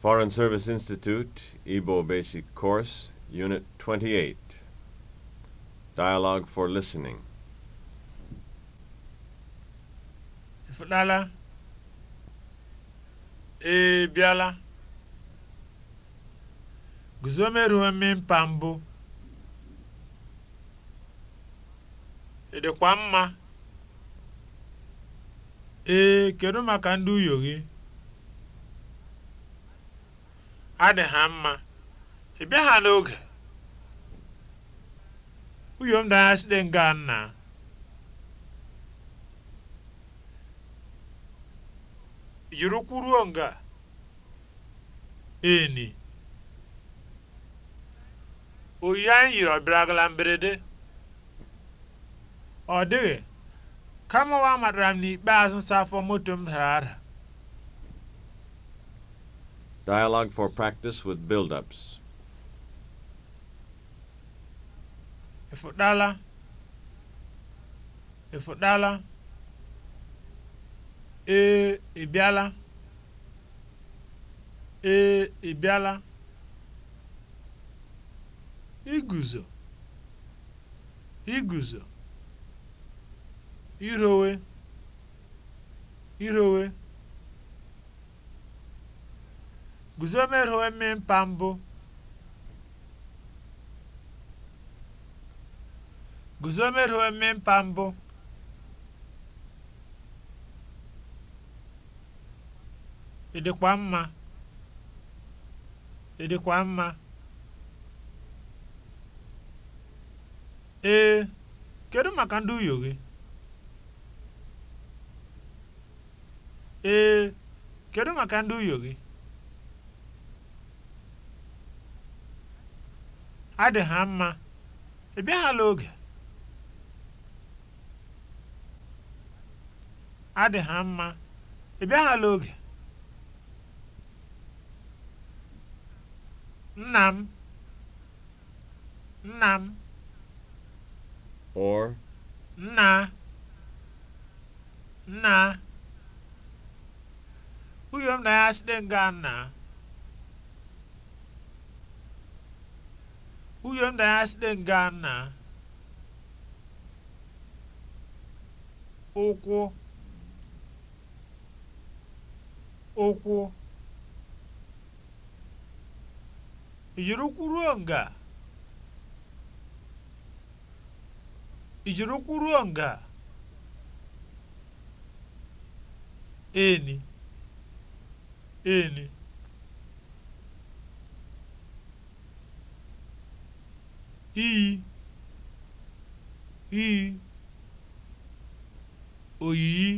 Foreign Service Institute, Igbo Basic Course, Unit 28. Dialogue for Listening. Ifụlala, ị e, bịala, guzo merụọ mmịmpa mbụ, e, mma, ee, kedu maka ndu uyo adị ha mma ị bịa ha n'oge uyom danya site nga nna yiri kwuruo nga eni oyi anyị yiri ọbịaragala mberede ọ dịghị kama wa matara m n'ikpeazụ nsa afọ moto m dara ada Dialogue for practice with build-ups. Ịfụdala. Ịfụdala. Ee, ị E Ee, I bịala. Iguzo. Iguzo. Irowe. Irowe. guzo merho emi mpambụ guzo merho emi mpambụ ị dịkwa mma ị dịkwa mma ee kedu maka ndị uyo gị ee kedu maka ndị uyo gị adị ha mma ị oge adị ha mma oge nna m nna m or nna nna uyo m na ya site nga nna Huyo ndayasi dengana. ụkwụ ụkwụ ijiri ụkwụ ruo nga ijiri ụkwụ ruo eni eni iyi iyi oyiyi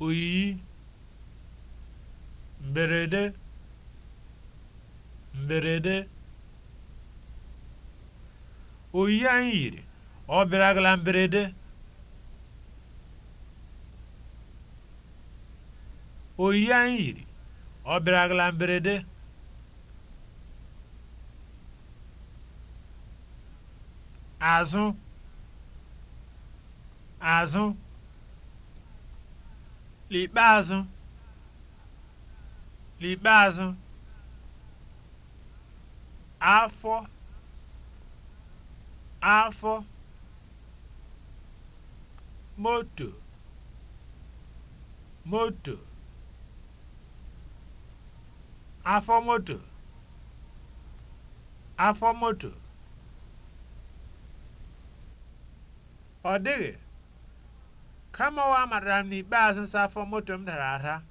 oyiyi mberede mberede oyiyi anyị yiri ọ bịaragala mberede oyiyi anyị yiri ọ bịaragala mberede azụ azụ l'ikpeazụ l'ikpeazụ afọ afọ moto moto afọ moto afọ moto ọ dịghị kama ọwa matara m n'ikpeazụ nsa afọ moto m dara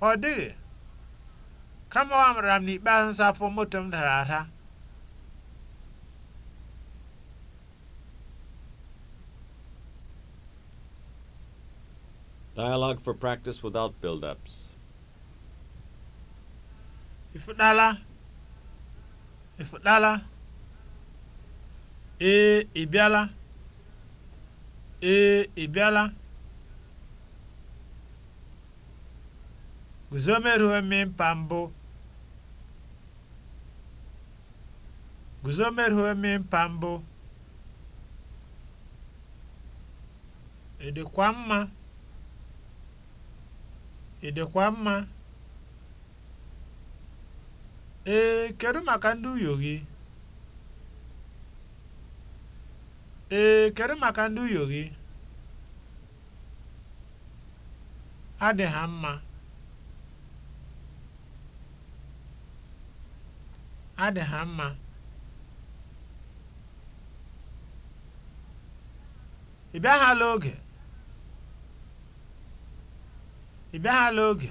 ọ dịghị kama Dialogue for practice without build-ups. ịfụdala ịfụdala ee ị bịala ee ị bịala guzo merụọ e mimpa mbụ guzo merụọ e mma ị mma Ee, kedụ maka ndị uyo gị? Adị ha mma. Adị ha mma. Ị bịaghala oge? Ị bịaghala oge?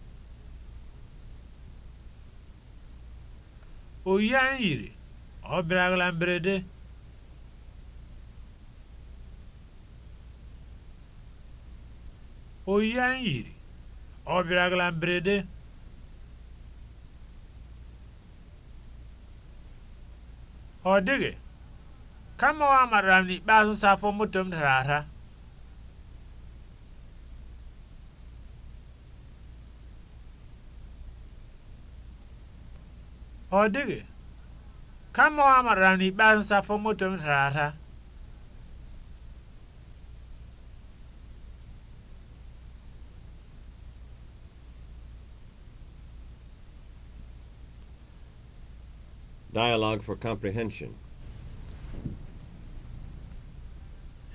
oyi anyị yiri ọ bịara mberede oyi anyị mberede ọ dịghị kama ọ amara m n'ikpeazụ afọ moto m dara ada Ọ dịghị, kama ọ matara na ikpeazụ nsafọ moto m tara ata. Dialogue for comprehension.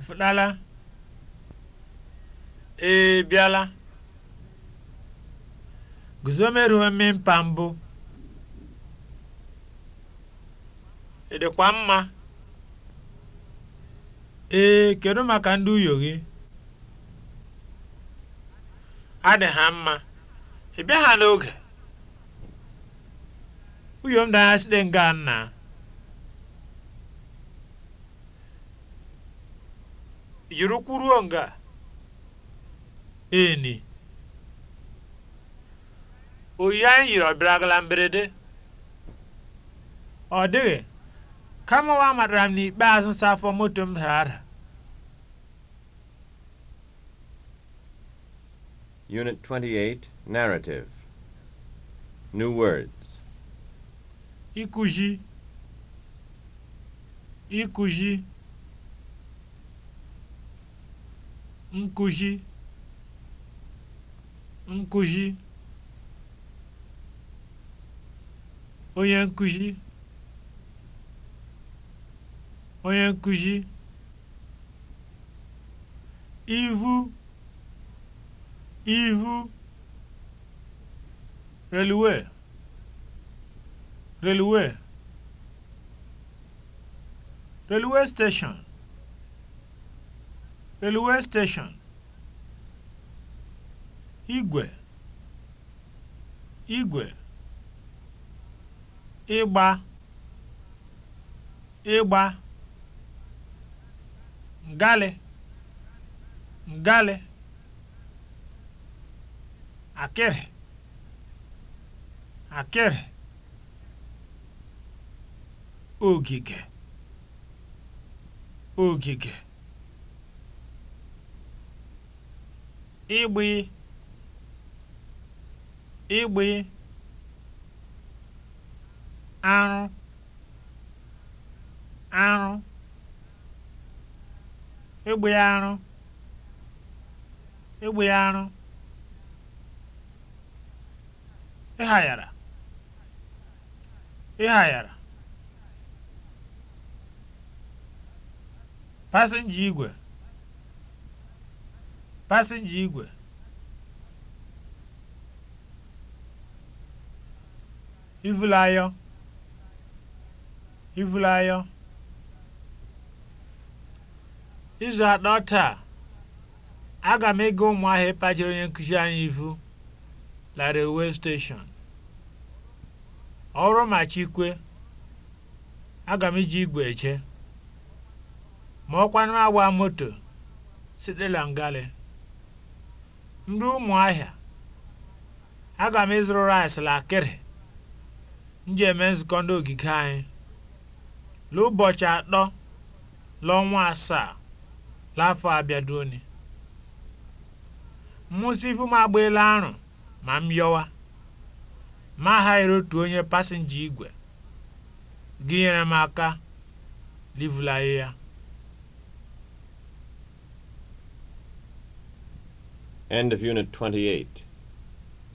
Ịfụtala? Ee, bịala. Guzo meruo mmịmpa mbụ. ị dịkwa mma ee kedu maka ndị uyo gị adị ha mma ị bịa ha n'oge uyo m danya site nga nna yiri kwuruo nga eni oyi anyị yiri ọ bịara mberede ọ dịghị kama wa matara m n'ikpeazụ nsa moto m dara ada Unit 28 Narrative New words Ikuji Ikuji Nkuji Nkuji Onye nkuji onye nkụzi ihu ivu reluwe reluwe reluwe station reluwe steshọn igwe igwe ịgba ịgba ngalị ngalị akere, akere, ogige ogige ịgbị ịgbị arụ arụ egbe arụ egbe arụ ịghayara ịghayara pasenja igwe pasenja igwe ivulayọ ivulayọ izu atọ taa aga m ịga ụmụahịa ịkpachiri onye nkụzi anyị ivu la railway station ọrụ ma chikwe aga m iji igwe eche ma ọkwanụ agba moto site langalị ndị ụmụahịa aga m ịzụrụ rice lakịrị m ji eme nzukọ ndị ogige anyị n'ụbọchị atọ n'ọnwa asaa l'afọ abịaduoni mmụsị ifu m agbaela arụ ma m yọwa ma aghaghịrị otu onye pasinja igwe gị nyere m aka livulaghị ya End of Unit 28